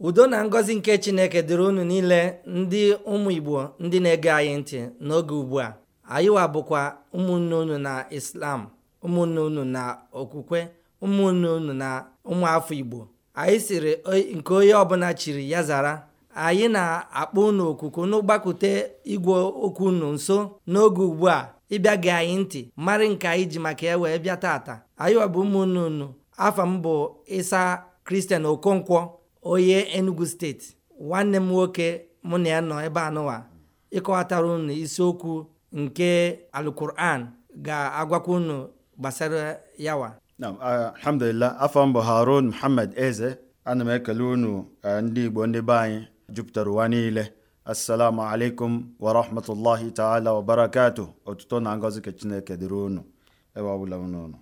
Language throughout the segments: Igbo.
udo na ngọzi nke chineke dịrị unu niile ndị ụmụ igbo ndị na-ege anyị ntị n'oge ugbu a anyịwa bụkwa ụmụnne unu na islam ụmụnne unu na okwukwe ụmụnne unu na ụmụafọ igbo anyị siri nke onye ọbụla chiri ya zara anyị na-akpọ unu okuku n'ụgbakute igwe okwu unu nso n'oge ugbu a ịbịa gị anyị ntị marị nke anyị ji maka ya wee bịa taata anyịwa bụ ụmụnne unu afa m bụ ịsa kristian okonkwo onye enugu steeti nwanne m nwoke mụ na ya nọ ebe anụwa ịkọwatara unu isiokwu nke alukuran ga-agwakwa unu gbasara yawa alhamdulillah afọ mbụ harun muhammad eze ana m ekele unu ndị igbo ndị be anyị jupụtara ụwa niile assalamu alaikum wa rahmatullahi taala wa barakatu otuto na ngozi ka chineke dịrị unu ebe ọbụla unu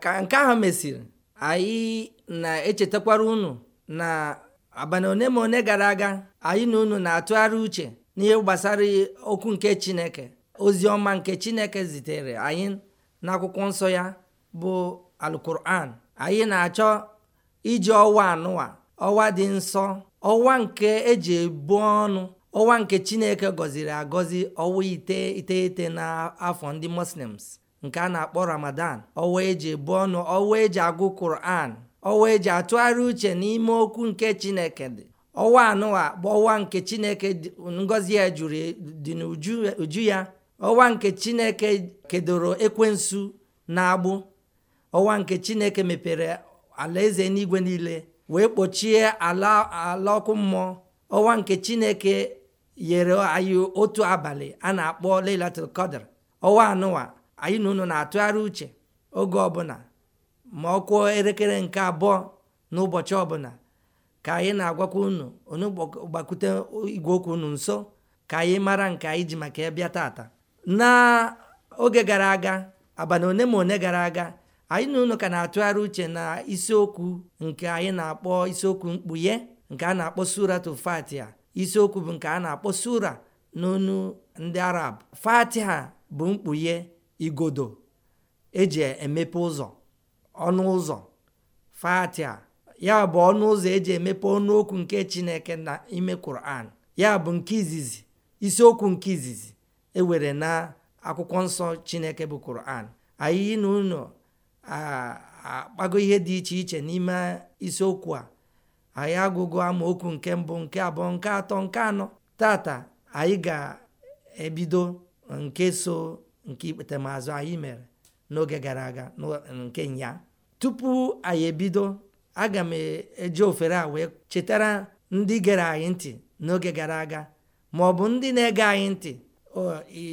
ka nke ahụ mesịrị anyị na-echetakwara unu na abalị one ma one gara aga anyị na unu na-atụgharị uche n'ihe gbasara okwu nke chineke ozi ọma nke chineke zitere anyị n'akwụkwọ nsọ ya bụ alkuran anyị na-achọ iji ọwa anụwa ọwa dị nsọ ọwa nke eji ebu ọnụ ọwa nke chineke gọziri agọzi ọwa ite iteghete n'afọ ndị muslims nke a na-akpọ ramadan ọwa eji ebu ọnụ ọwa eji agụ kuran wee eji atụgharị uche n'ime okwu nke chineke dị ọwa anụwa bụ ọwa nke chineke ngọzi ya jụrụ dị n'uju ya ọwa nke chineke kedoro ekwensu na agbụ ọwa nke chineke mepere alaeze n'igwe niile wee kpochie ala ọkụ mmụọ ọwa nke chineke yere anyị otu abalị a na-akpọ Lailatul ọwa anụwa anyị na unu na-atụgharị uche oge ọbụla ma ọ kụọ elekere nke abụọ n'ụbọchị ọbụla ka anyị na-agwakwa unu onye gbakwute igwe okwu unu nso ka anyị mara nke anyị ji maka ya taata. tata n'oge gara aga abalị one ma one gara aga anyị na unu ka na-atụgharị uche na isiokwu nke anyị na-akpọ isiokwu mkpughe nke a na-akpọ suratu fatiha isiokwu bụ nke a na-akpọ sura n'onu ndị arab ha bụ mkpughe igodo eji emepe ụzọ ọnụ ụzọ fatia ya bụ ọnụ ụzọ eji emepe ọnụokwu nke chineke na ime kuran ya bụ nke izizi isiokwu nke izizi ewere na akwụkwọ nsọ chineke bụ kuran anyị na ụlọ akpago ihe dị iche iche n'ime isiokwu a anyị agụgo amaokwu nke mbụ nke abụọ nke atọ nke anọ tata anyị ga-ebido nke so nke ikpetemaazụ anyị mere n'oge gara aga nke nya tupu anyị ebido aga m eji ofere a wee chetara ndị gere anyị ntị n'oge gara aga ma ọ bụ ndị na-ege anyị ntị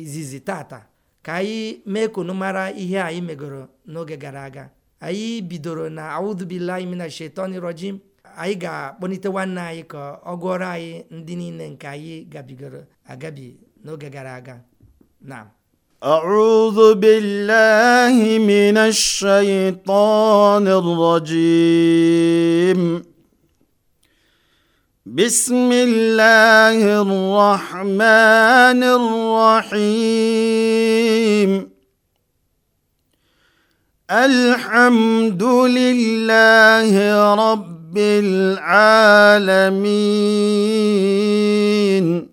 izizi tata ka anyị mee kunu mara ihe anyị megoro n'oge gara aga anyị bidoro na audubillahi mina shetani rojim anyị ga-akpọlite nwanne anyị ka ọ gụọrọ anyị ndị niile nke anyị gabigoro agabi n'oge gara aga na ir-rajim. auzubilhimin shayitonjam bismila hịrahmanịrahm alhamdulilehirọblaramin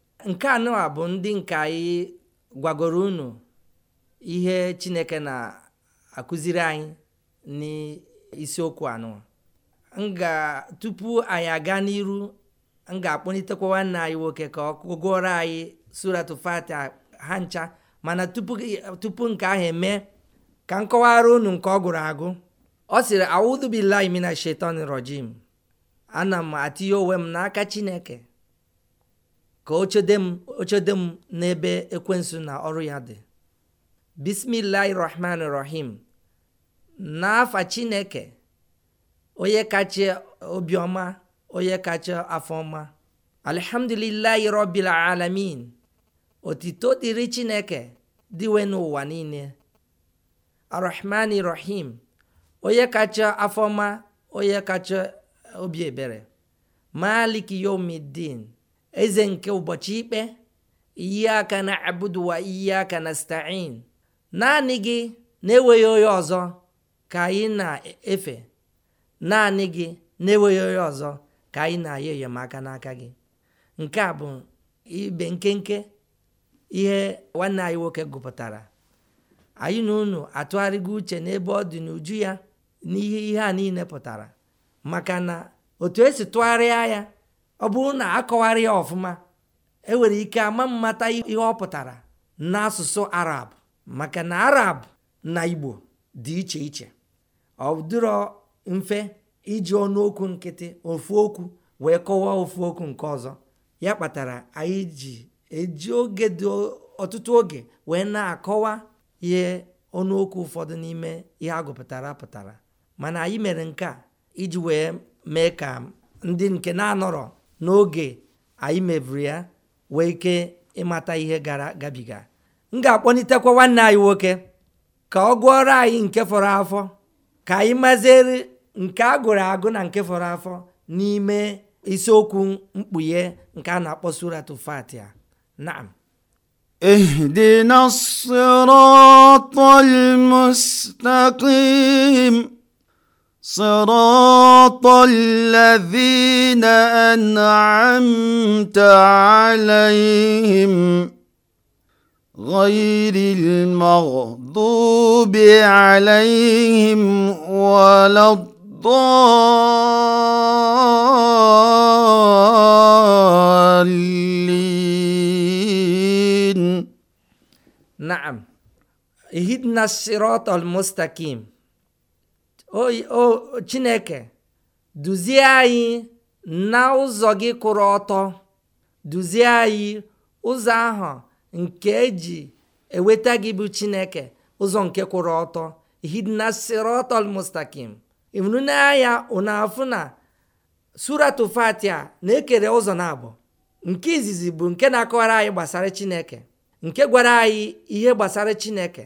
nke anụwa bụ ndị nke anyị gwagoro unu ihe chineke na-akụziri anyị n'isiokwu anụwa tupu anyị aga n'iru m ga-akpọlitekwa nwanne anyị nwoke ka ọ gụọrọ anyị suratu fatiha ha ncha mana tupu nke ahụ eme ka m kọwara unu nke ọ gụrụ agụ ọ sịrị audu billahi shetan rojim ana m atinye onwe m n'aka chineke ka ochede m ochede m n'ebe ekwensụ na ọrụ ya dị bismillahi rahman rahim n'afa chineke onye kacha Obioma, onye kacha afọma alhamdulillahi rabbil alamin otito dịrị chineke dịwe n'ụwa niile arrahmani rahim onye kacha afọma onye kacha obi ebere maliki yomidin Eze nke ụbọchị ikpe aka na abudu aka na nasta'in naanị gị na-enweghị onye ọzọ ka anyị na-efe naanị gị na-enweghị onye ọzọ ka anyị na-ayọ enyemaka n'aka gị nke a bụ ibe nkenke ihe nwanne anyị nwoke gụpụtara anyị na unu atụgharịgo uche n'ebe ọ dị n'uju ya n'ihe ihe a niile pụtara maka na otu esi tụgharịa ya ọ bụrụ na akọwara ya ọfụma enwere ike ama mmata ihe ọ pụtara n'asụsụ arab maka na arab na igbo dị iche iche ọ dịrọ mfe iji ọnụokwu nkịtị ofu okwu wee kọwaa ofu okwu nke ọzọ ya kpatara anyị ji eji oge dị ọtụtụ oge wee na-akọwa ihe ọnụokwu ụfọdụ n'ime ihe agụpụtara pụtara mana anyị mere nke a iji wee mee ka ndị nke na-anọrọ n'oge anyị mebiri ya wee ike ịmata ihe gara gabiga m ga-akpọnitekwa nwanne anyị nwoke ka ọ gụọrọ anyị nke fọrọ afọ ka anyị maziri nke a gụrụ agụ na nke fọrọ afọ n'ime isiokwu mkpughe nke a na-akpọ suratu fatia na اهدنا الصراط sirọtọllevina enaeteleihim ọirilimoụ dụbe aleehi m waladụọili smk o chineke duzie anyị na ụzọ gị kwụrụ ọtọ duzie anyị ụzọ ahụ nke eji enweta gị bụ chineke ụzọ nke kwụrụ ọtọ hidna sirotol mustakim anya ụnafụ na suratu fatia na-ekere ụzọ na abụọ nke izizi bụ nke na-akọwara anyị gbasara chineke nke gwara anyị ihe gbasara chineke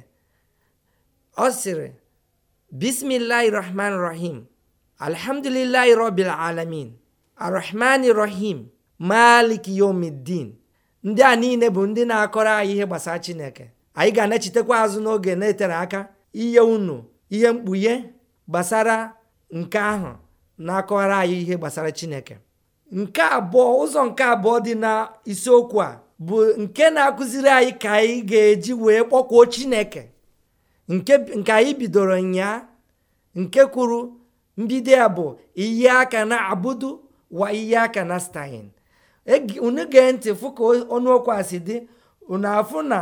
ọ sịrị Bismillahirrahmanirrahim. Alhamdulillahi Rabbil Alamin. Arrahmanirrahim. Malik Yomiddin. Ndị a niile bụ ndị na-akọrọ anyị ihe gbasara Chineke. Anyị ga-anachitekwa azụ n'oge na-etere aka ihe unu ihe mkpughe gbasara nke ahụ na-akọrọ anyị ihe gbasara Chineke. Nke abụọ ụzọ nke abụọ dị na isiokwu a bụ nke na-akụziri anyị ka anyị ga-eji wee kpọkwuo Chineke nke nke anyị bidoro ya nke kwuru mbido ya bụ iyi aka na abudu wa iyi aka na stein unu gee ntị fụ ka ọnụokwu a si dị unu afụ na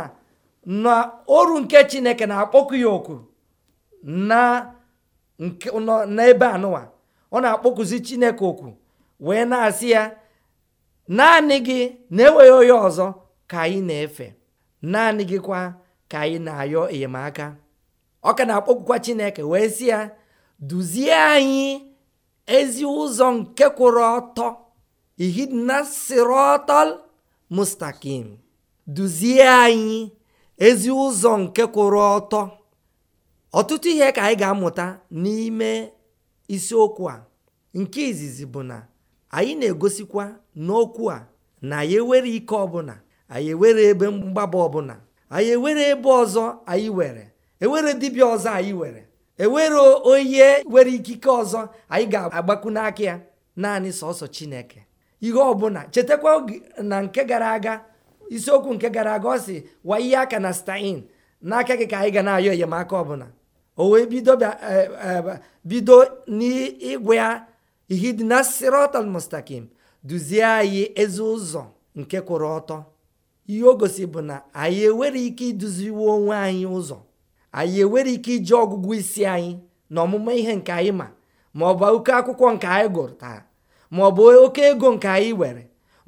na ọrụ nke chineke na-akpọku ya oku na n'ebe anụwa ọ na-akpọkuzi chineke oku wee na-asị ya naanị gị na-enweghị onye ọzọ ka anyị na-efe naanị gị kwa ka anyị na-ayọ enyemaka ọ ka na-akpọkwa chineke wee sị ya duzie anyị ezi ụzọ nke kwụrụ ọtọ ihidna sirotol mustakim duzie anyị ezi ụzọ nke kwụrụ ọtọ ọtụtụ ihe ka anyị ga-amụta n'ime isiokwu a nke izizi bụ na anyị na-egosikwa n'okwu a na anyị ewere ike ọbụla anyị ewere ebe mgbaba ọbụla anyị ewere ebe ọzọ anyị were ewere dibịa ọzọ anyị were ewere onye were ikike ọzọ anyị ga-agbakwu n'aka ya naanị sọsọ chineke ihe ọbụla chetakwa na nke gara aga isiokwu nke gara aga ọ sị wa ihe aka na stein n'aka gị ka anyị ga na-ayọ enyemaka ọbụla o wee bido e, e, n'ịgwa ya ihe dị na sirotol mustakim duzie anyị ezi ụzọ nke kwụrụ ọtọ ihe o gosi bụ na anyị enwere ike iduziwe onwe anyị ụzọ anyị enwere ike iji ọgụgụ isi anyị na ọmụma ihe nke anyị ma ma ọ bụ oke akwụkwọ nke anyị gụtara ma ọ bụ oke ego nke anyị were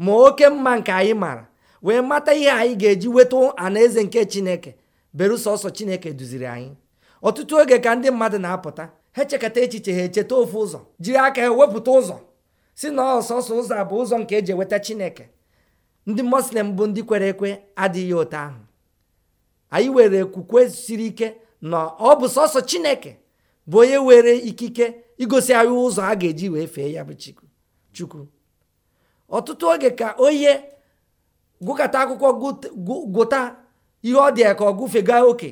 ma oke mma nke anyị mara wee mata ihe anyị ga-eji weta anaeze nke chineke berusọsọ chineke duziri anyị ọtụtụ oge ka ndị mmadụ na-apụta ha echekata echiche ha echeta ofu ụzọ jiri aka ha wepụta ụzọ si na ọsọsọ ụzọ bụ ụzọ nke eji eweta chineke ndị muslim bụ ndị kwere ekwe adịghị otu ahụ anyị were okwukwe siri ike na ọ bụ sọsọ chineke bụ onye were ikike igosi anyị ụzọ a ga-eji wee fee ya bụ chukwu ọtụtụ oge ka onye gụkata akwụkwọ gụta ihe ọ dị ya ka ọ gụfega oke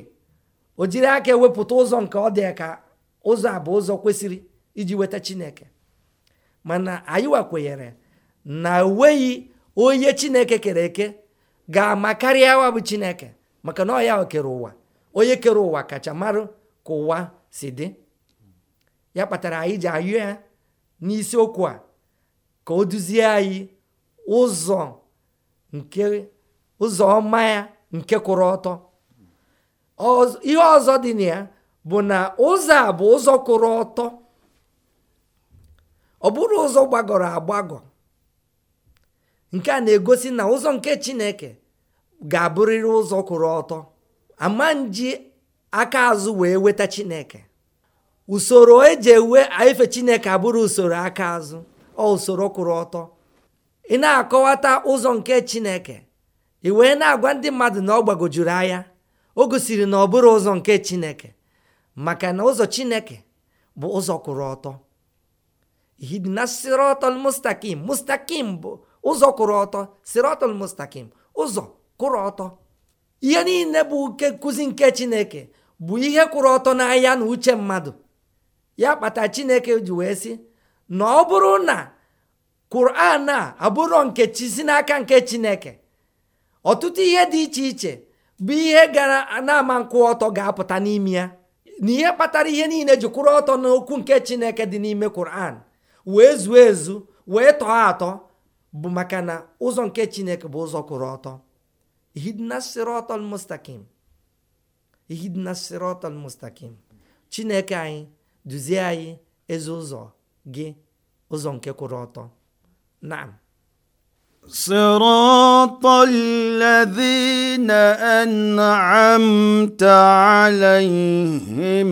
o jiri aka ewepụta ụzọ nke ọ dị ya ka ụzọ a bụ ụzọ kwesịrị iji weta chineke mana anyị wakwenyere na o nweghị onye chineke kere eke ga-ama karịa wa bụ chineke maka na ọya kere ụwa onye kere ụwa kacha mara ka ụwa si dị ya kpatara anyị ji ayụ ya n'isiokwu a ka o duzie anyị ụzọ nke ụzọ ọma ya nke kwụrụ ọtọ ihe ọzọ dị na ya bụ na ụzọ a bụ ụzọ kwụrụ ọtọ ọ bụrụ ụzọ gbagọrọ agbagọ nke a na-egosi na ụzọ nke Chineke ga-abụrịrị ụzọ kwụrụ ọtọ ama nji aka azụ wee weta chineke usoro eji ewe efe chineke abụrụ usoro aka azụ ọ usoro kwụrụ ọtọ ị na-akọwata ụzọ nke chineke ị wee na-agwa ndị mmadụ na ọ gbagojuru anya o gosiri na ọ bụrụ ụzọ nke chineke maka na ụzọ chineke bụ ụzọ kwụrụ ọtọ bụ ụzọ kwụrụ ọtọ sirotol mustakim ụzọ kwụrụ ọtọ ihe niile bụ nke nkụzi nke chineke bụ ihe kwụrụ ọtọ n'ahịa na uche mmadụ ya kpata chineke ji wee sị na ọ bụrụ na quran a abụrụ nke chi si n'aka nke chineke ọtụtụ ihe dị iche iche bụ ihe gara na-ama nkwụ ọtọ ga-apụta n'ime ya na ihe kpatara ihe niile ji kwụrụ ọtọ n'okwu nke chineke dị n'ime quran wee zuo ezu wee tọọ atọ bụ maka na ụzọ nke chineke bụ ụzọ kwụrụ ọtọ ihidnas sirotol mustaqim chineke anyị duzie anyị ezi ụzọ gị ụzọ nke kwụrụ ọtọ naam صراط الذين أنعمت عليهم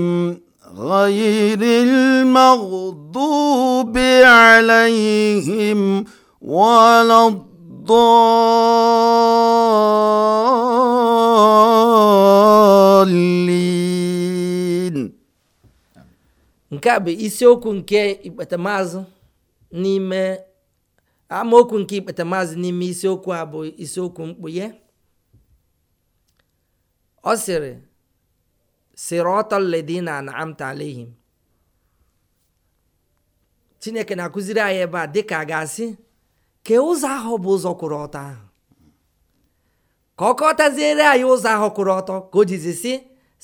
غير المغضوب عليهم ولا ضالين nke a bụ isiokwu nke ikpetamazụ n'ime amaokwu nke ikpetamazụ n'ime isiokwu a bụ isiokwu mkpughe ọ sịrị na anamta ihe. chineke na-akụziri anyị ebe a dịka a ga-asị ka ụzọ ahụ bụ ụzọ kwụrụ ọtọ ahụ ka ọ kọtaziere anyị ụzọ ahụ kwụrụ ọtọ ka o jizi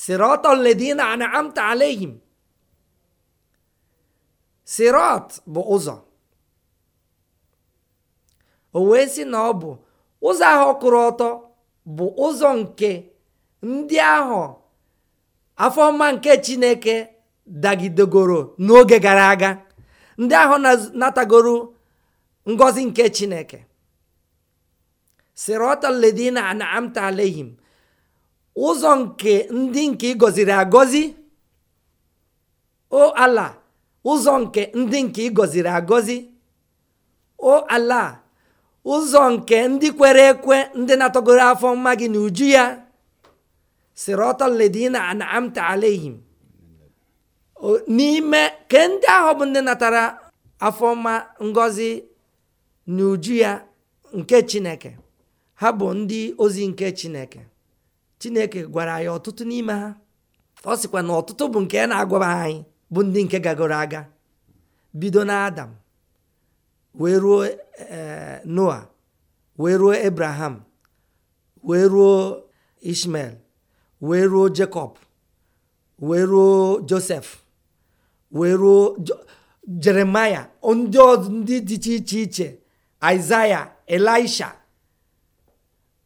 sirot ledina anamta alehim bụ ụzọ o wee sị na ọ bụ ụzọ ahụ kwụrụ ọtọ bụ ụzọ nke ndị ahụ afọ mma nke chineke dagidegoro n'oge gara aga ndị ahụ natagoro ngozi nke chineke sirọta ledina an'amta alehim ụzọ nke ndị nke ị gọziri agọzi o ala ụzọ nke ndị nke ị gọziri agọzi o ala ụzọ nke ndị kwere ekwe ndị na-atọgoro afọ mma gị na uju ya sirọta ledina an'amta alehim n'ime ke ndị ahụ bụ ndị natara afọ mma ngọzi n'uju ya nke chineke ha bụ ndị ozi nke chineke chineke gwara ya ọtụtụ n'ime ha ọ sịkwa na ọtụtụ bụ nke na agwaba anyị bụ ndị nke gagoro aga bido na adam wee ruo e, noa wee ruo abraham wee ruo ishmael wee ruo jacob wee ruo joseph wee ruo jeremaya ndị dị iche iche Isaiah, Elisha,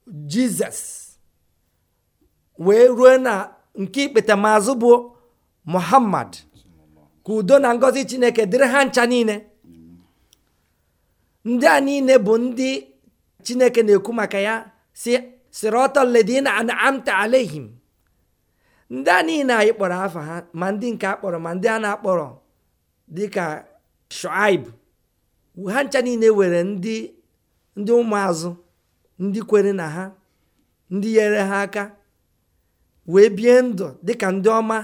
Jizọs wee ruo na nke ikpetamazụ bụ Muhammad ka udo na ngọzi Chineke dịrị ha ncha niile ndị a niile bụ ndị Chineke na-ekwu maka ya ọtọ si sirotoledina anamta alehim ndị a niile anyị kpọrọ afa ha ma ndị nke kpọrọ ma ndị a na-akpọrọ dịka Shuaib ha ncha niile were ndị ndị ụmụazụ ndị kwere na ha ndị nyere ha aka wee bie ndụ dịka ndị ọma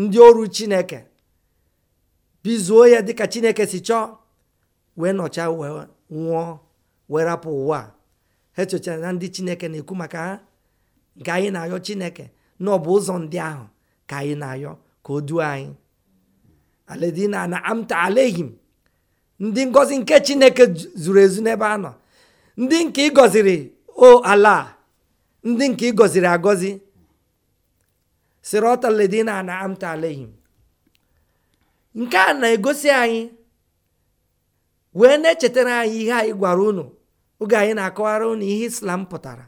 ndị ọrụ chineke bizuo ya dịka chineke si chọọ wee nọcha wee nwụọ wee rapụ ụwa ha echochara na ndị chineke na-ekwu maka ha nke anyị na-ayọ chineke na ọ bụ ụzọ ndị ahụ ka anyị na-ayọ ka o duo anyị aledina na amta alehim ndị ngọzi nke chineke zuru ezu n'ebe a nọ ndị nke ịgọziri o ala ndị nke ịgọziri agọzi sirọtaledina na amta alehim nke a na-egosi anyị wee na-echetara anyị ihe anyị gwara unu oge anyị na-akọwara unu ihe islam pụtara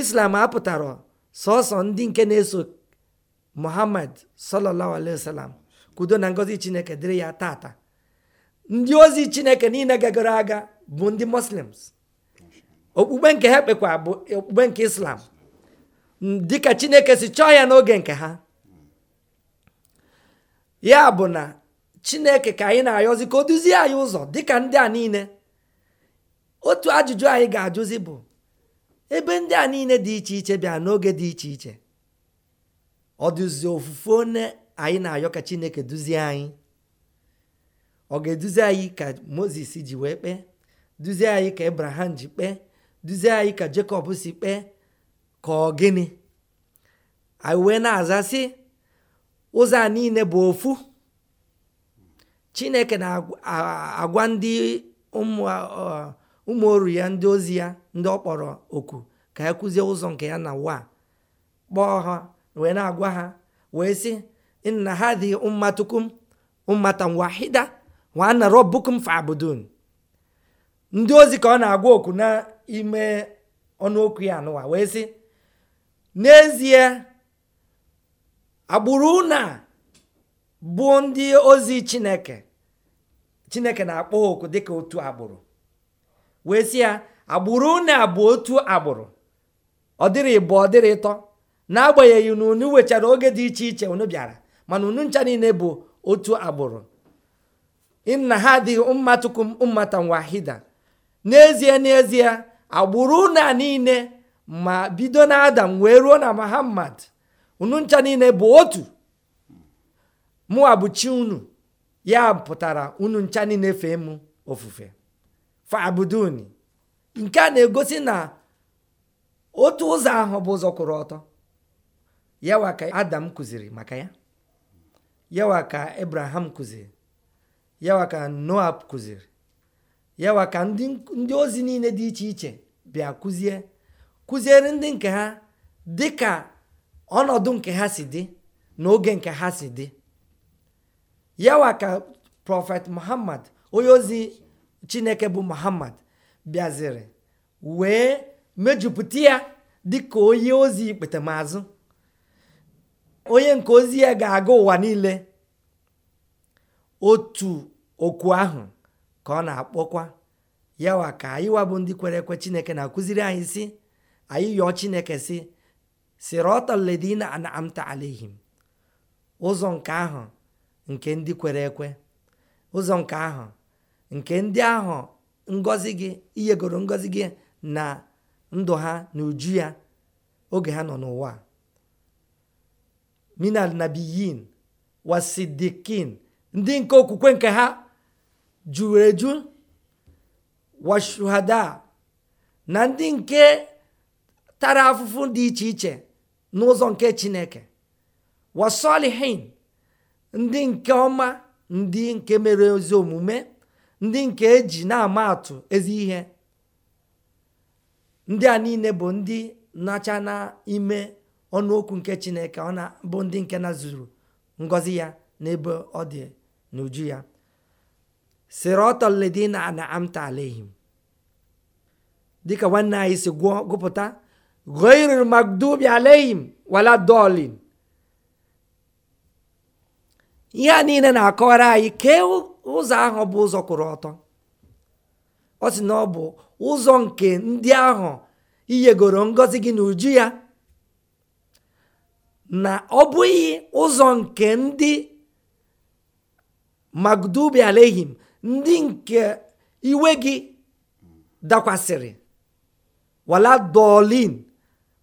islam apụtara sọsọ ndị nke na-eso muhammad sallallahu alaihi wasallam kudo na ngọzi chineke dịrị ya tata ndị ozi chineke niile gagara aga bụ ndị muslims okpukpe nke ha kpekwa bụ okpukpe nke islam dịka chineke si chọọ ya n'oge nke ha ya bụ na chineke ka anyị na-ayọzi ka o duzie anyị ụzọ dịka ndị a niile otu ajụjụ anyị ga-ajụzi bụ ebe ndị a niile dị iche iche bịa n'oge dị iche iche ọ ofufe one anyị na-ayọ ka chineke duzie anyị ọ ga-eduzi anyị ka moses ji wee kpee duzie anyị ka abraham ji kpee duzie anyị ka jekọb si kpee ka ọ gịnị anyị wee na-aza ụzọ a niile bụ ofu chineke na-agwa ndị ụmụ oru ya ndị ozi ya ndị ọ kpọrọ oku ka ya kụzie ụzọ nke ya na wa kpọọ ha wee na-agwa ha wee sị nna ha dị mmatukum mmata wahida nwanna rabbukum fa'budun ndị ozi ka ọ na-agwa okwu n'ime ọnụokwu ya anụwa wee sị n'ezie agbụrụ na bụ ndị ozi chineke chineke na-akpọ ha oku dịka otu agbụrụ wee sị ya agbụrụ na bụ otu agbụrụ ọ dịrị ịbụ ọ dịrị ịtọ n'agbanyeghị na unu wechara oge dị iche iche unu bịara mana unu ncha niile bụ otu agbụrụ inna hadhihi ummatukum ummatan wahida n'ezie n'ezie agbụrụ a niile ma bido na adam wee ruo na muhammad unu ncha niile bụ otu mụwa unu ya pụtara unu ncha niile fee m ofufe fabuduni nke a na-egosi na otu ụzọ ahụ bụ ụzọ kwụrụ ọtọ yawa ka adam kụziri maka ya yawa ka ibrahim kụziri yawa ka noa kụziri yawa ka ndị ozi niile dị iche iche bịa kụzie kụziere ndị nke ha dị ka ọnọdụ nke ha si dị na oge nke ha si dị yawa ka prọfet muhammad onye ozi chineke bụ muhammad bịaziri wee mejupụta ya dịka onye ozi ikpetemazụ onye nke ozi ya ga-aga ụwa niile otu okwu ahụ ka ọ na-akpọkwa yawa ka anyị wabụ ndị kwere ekwe chineke na-akụziri anyị si anyị yọọ chineke si sirọtọledina anamta alehim ụzọ nke ahụ nke ndị kwere ekwe ụzọ nke ahụ nke ndị ahụ ngọzi gị iyegoro ngọzi gị na ndụ ha na uju ya oge ha nọ n'ụwa minal nabiyin wasidikin ndị nke okwukwe nke ha juru eju washuhada na ndị nke tara afụfụ dị iche iche n'ụzọ nke chineke wasolihin ndị nke ọma ndị nke mere ezi omume ndị nke e ji na-ama atụ ezi ihe ndị a niile bụ ndị nacha ọnụ ọnụokwu nke chineke ọ na bụ ndị nke na zuru ngọzi ya n'ebe ọ dị n'uju ya sịrị ledina na amta alehim dịka nwanne anyị si gụọ gụpụta ghairil magdubi alehim wala dolin ihe a niile na-akọwara anyị kee ụzọ ahụ bụ ụzọ kwụrụ ọtọ ọ sị na ọ bụ ụzọ nke ndị ahụ iyegoro ngọzi gị na uju ya na ọ bụghị ụzọ nke ndị magdubi alehim ndị nke iwe gị dakwasịrị wala dolin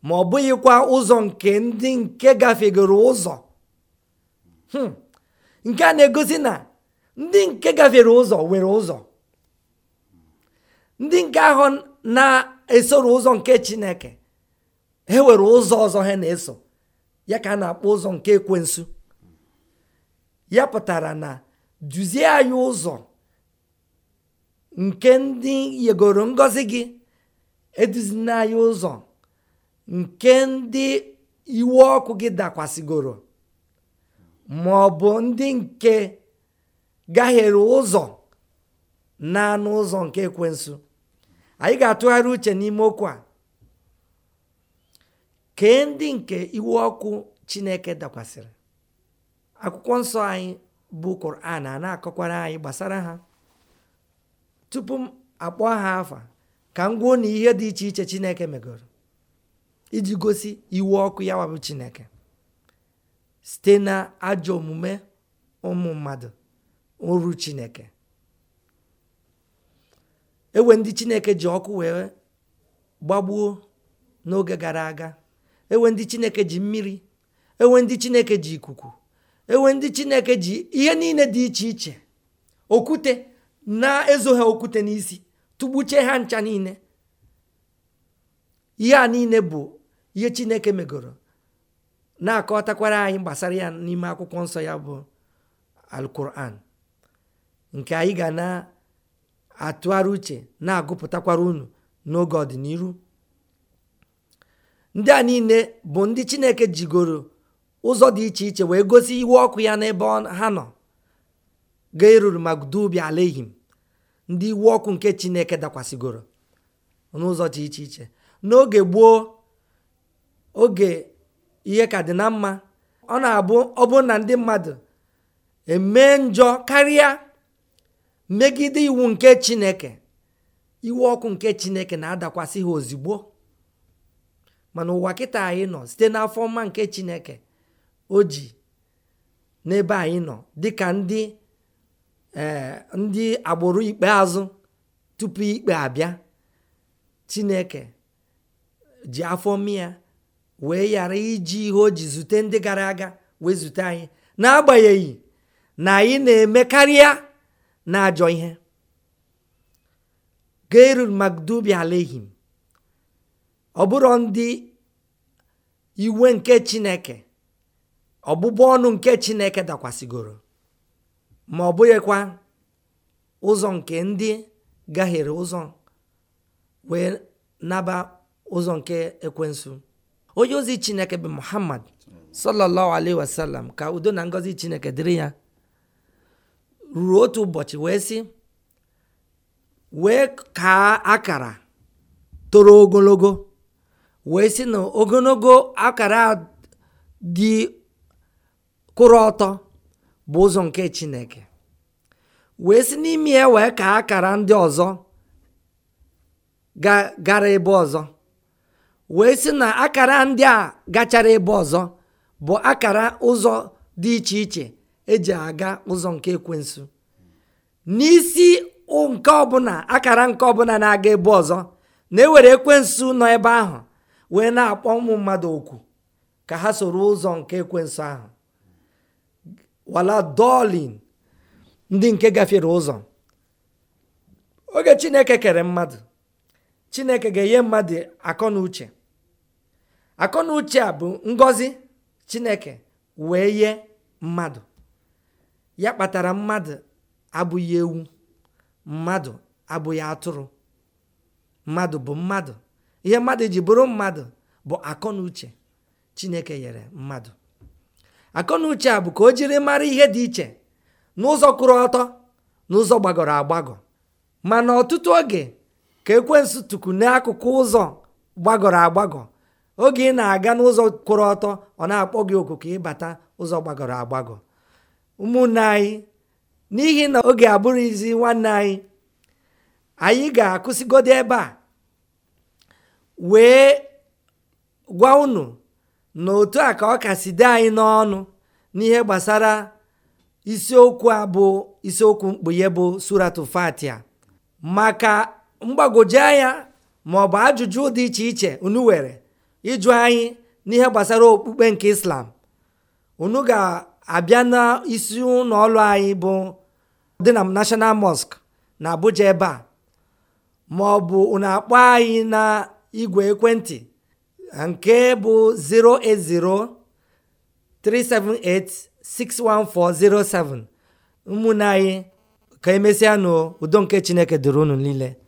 ma ọ bụghịkwa ụzọ nke ndị nke gafegoro ụzọ hmm. nke a na-egosi na ndị nke gafere ụzọ were ụzọ ndị nke ahụ na-esoro ụzọ nke chineke e were ụzọ ọzọ ha na-eso ya ka a na-akpọ ụzọ nke ekwensu ya pụtara na duzie anyị ụzọ nke ndị yegoro ngọzi gị eduzina anyị ụzọ nke ndị iwe ọkụ gị dakwasịgoro ma ọ bụ ndị nke gahiere ụzọ na ụzọ nke ekwensu anyị ga-atụgharị uche n'ime okwu a kee ndị nke iwe ọkụ chineke dakwasịrị akwụkwọ nsọ anyị bụ Quran a na-akọkwara anyị gbasara ha tupu m akpọ ha afa ka m gwuo na ihe dị iche iche Chineke megoro iji gosi iwu ọkụ ya wabụ Chineke site na ajọ omume ụmụ mmadụ ụrụ Chineke ewe ndị Chineke ji ọkụ wee gbagbuo n'oge gara aga ewe ndị Chineke ji mmiri ewe ndị Chineke ji ikuku enwe ndị chineke ji ihe niile dị iche iche okwute na-ezo ha okwute n'isi tụgbuche ha ncha niile ihe a niile bụ ihe chineke megoro na-akọtakwara anyị gbasara ya n'ime akwụkwọ nsọ ya bụ alkuran nke anyị ga na-atụgharị uche na-agụpụtakwara unu n'oge ọdịnihu ndị a niile bụ ndị chineke jigoro ụzọ dị iche iche wee gosi iwu ọkụ ya n'ebe ha nọ ga eruru ala alehim ndị iwu ọkụ nke chineke dakwasịgoro n'ụzọ dị iche iche n'oge gboo oge ihe ka dị na mma ọ na-abụ ọ bụrụ na ndị mmadụ emee njọ karịa megide iwu nke chineke iwe ọkụ nke chineke na-adakwasị ha ozigbo mana ụwa kịta anyị nọ site n'afọ mma nke chineke oji n'ebe anyị nọ dịka ndị eh, ndị agbụrụ ikpeazụ tupu ikpe abịa chineke ji afọ mmịa wee yara iji ihe o ji zute ndị gara aga wee zute anyị n'agbanyeghị na anyị na-eme karịa na ajọ ihe gairul magdubi alehim ọ bụrụ ndị iwe nke chineke ọgbụgbọ ọnụ nke chineke dakwasịgoro ma ọ bụghịkwa ụzọ nke ndị gaghịrị ụzọ wee naba ụzọ nke ekwensu onye ozi chineke bụ muhammad sallallahu alaihi wasallam ka udo na ngọzi chineke dịrị ya ruru otu ụbọchị wee sị wee kaa akara toro ogologo wee sị na ogologo akara dị Kụrụ ọtọ bụ ụzọ nke chineke wee si n'ime ya wee ka akara ndị ọzọ gara ebe ọzọ wee sị na akara ndị a gachara ebe ọzọ bụ akara ụzọ dị iche iche eji aga ụzọ nke ekwensu n'isi nke ọbụla akara nke ọbụla na-aga ebe ọzọ na-ewere ekwensu nọ ebe ahụ wee na-akpọ ụmụ mmadụ okwu ka ha soro ụzọ nke ekwensu ahụ wala dolin ndị nke gafere ụzọ oge chineke kere mmadụ chineke ga-enye mmadụ akọ na uche akọ na uche a bụ ngọzi chineke wee ye mmadụ ya kpatara mmadụ abụghị ewu mmadụ abụghị atụrụ mmadụ bụ mmadụ ihe mmadụ ji bụrụ mmadụ bụ akọ na uche chineke nyere mmadụ akọnuche a bụ ka o jiri mara ihe dị iche n'ụzọ kwụrụ ọtọ n'ụzọ gbagọrọ agbagọ mana ọtụtụ oge ka ekwe tuku n'akụkụ ụzọ gbagọrọ agbagọ oge ị na-aga n'ụzọ kwụrụ ọtọ ọ na-akpọ gị oku ịbata ụzọ gbagọrọ agbagọ ụmụnne anyị n'ihi na oge abụrụzi nwanne anyị anyị ga-akwụsịgodo ebe a wee gwa unu na otu a ka ọ kasị dị anyị n'ọnụ n'ihe gbasara isiokwu a bụ isiokwu mkpughe bụ suratu fatia maka mgbagwoju anya ma ọ bụ ajụjụ dị iche iche unu were ịjụ anyị n'ihe gbasara okpukpe nke islam unu ga-abịa n'isi ụlọ ọrụ anyị bụ dị na national mosque na abuja ebe a ma ọ bụ unu akpọ anyị na igwe ekwentị nke bụ 08037861407 ụmụnne anyị ka emesịa nụ udo nke chineke dịrị unu niile